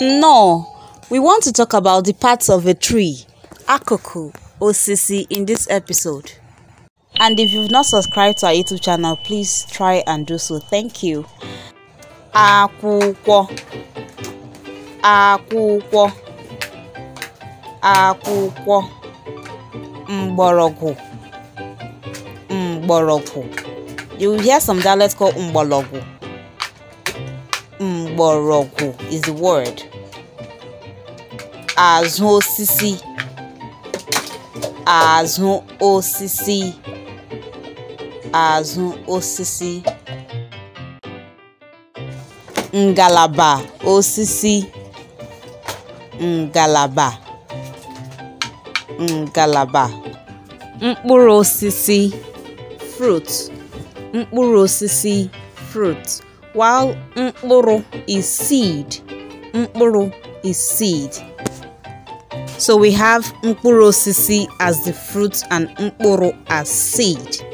No, we want to talk about the parts of a tree, akoku, osisi, in this episode. And if you've not subscribed to our YouTube channel, please try and do so. Thank you. Akwụkwọ akwụkwọ akwụkwọ mgbọrọgwụ mgbọrọgwụ. You will hear some dialects called mgbọrọgwụ. mgbọrọgwụ is the word azụ osisi azụ osisi azụ osisi ngalaba osisi ngalaba ngalaba mkpụrụ osisi fruit mkpụrụ osisi fruit while mkpụrụ is seed. Mkpụrụ is seed. So we have mkpụrụ osisi as the fruit and mkpụrụ as seed.